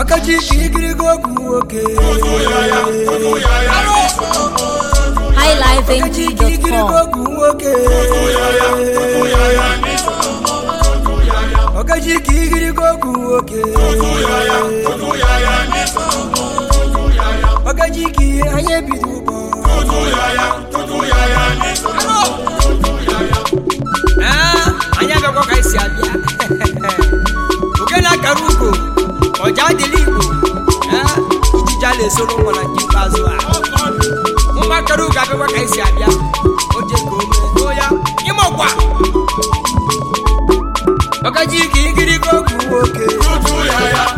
Ọkachi ikirigo ọgwụ nwoke Ọkachi ikirigo ọgwụ nwoke Ọkachi ikirigo ọgwụ nwoke Ọkachi ah, anya ebido ụgbọ Anya gakwa ka esi abịa Oke na-akara ugo ọja dịla igbo ijija na-esoro nwa na nke ikpeazụ a nwa chọrọ ụga abịakwa ka anyị si abịa oje ka ya ịmụkwa ọkaji nwoke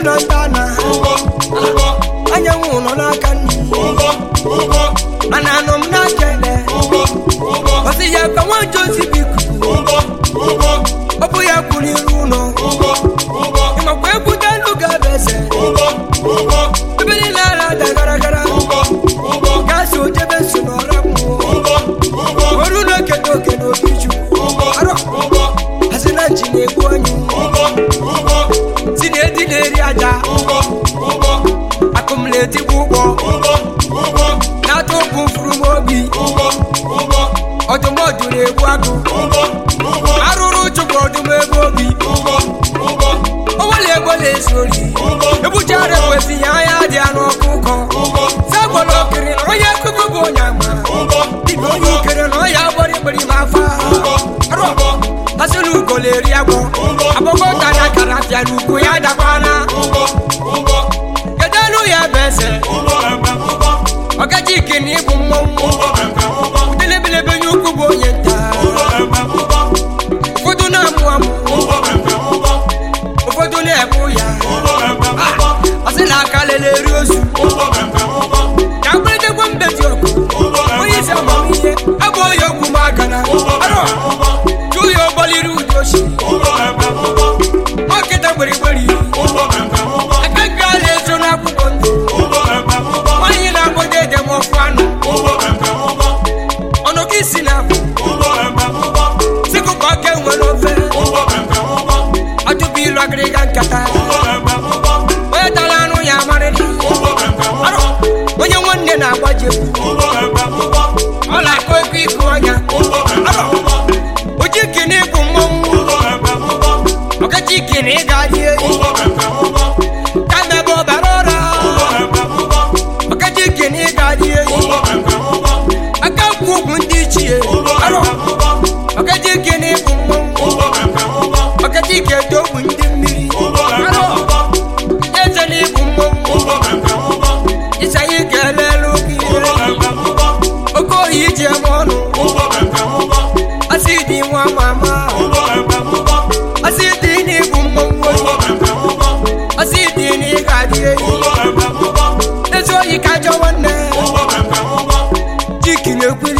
ụlọ nta na anyanwụ nọ n'aka mana anọ m na-akele ya ka nwa biko etigbu ụgbọ na-atụ ọdụmọdụ na-egbu agụ arụrụ chụpụ ọdụm ebe obi onwere ego na-ezu ori ebuchara ekwesị ya anya dị ya n'ọkụ ụkọ zagbọrọ na onye akụkụ bụ onye ama na ọya gbọrọ ikpere m afa arụbọ asịrị na ọkachike na bụ mmọnwụ udelebelebe nye ukwu bụ onye nta ụfọdụ na-amụ amụ ụfọdụ na-ebu ya asị ah, na aka lele eri ozu me got ekweli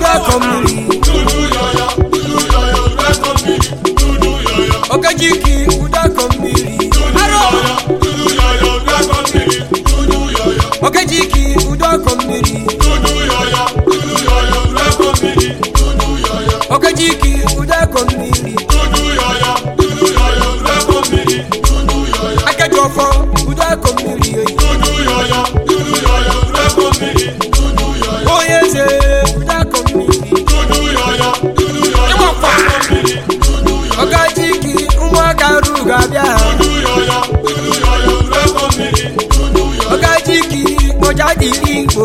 welcome me. Okajiki. ọrụ ga-abịa ha ọkajiki kpoja igbo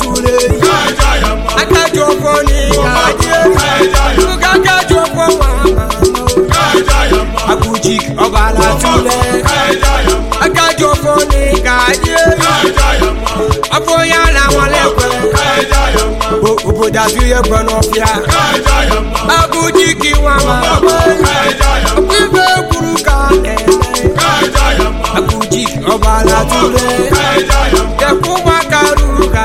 tule akájọ fọ ní ìdájẹ́ ṣúgà A fọ wàhánà àkùjì ọba látúlẹ̀ A fọ ní ìdájẹ́ afọyà làwọn lẹ́pẹ́ òbòdà fi yẹpẹ̀ náà fìyà A kí wọn máa ka pípẹ́ kúrú ká ẹ̀rẹ́ àkùjì ọba látúlẹ̀ A wákàrú ká.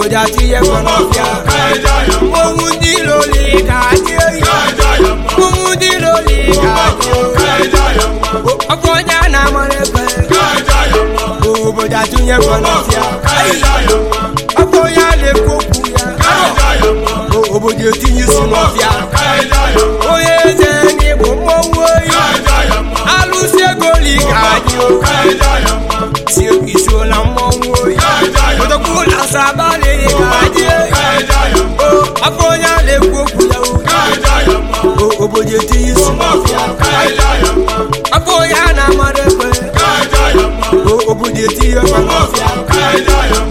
obodo atinye ọnọbịa ụmụ ndị iro ole ga oyi ụmụ ndị iro ole ga oyi ọkụ onye a na-amara ebe obodo atinye ọnọbịa ọkụ onye a na-ekwu okwu ya obodo etinye isi n'ọbịa onye eze n'igbo mmọnwụ oyi alụsị ego ole oyi ọbụla asabali oh, afọ onye na-ekwu okwu oh, ya obodo etinye isi afọ onye a na-amara ekwe oh, obodo etinye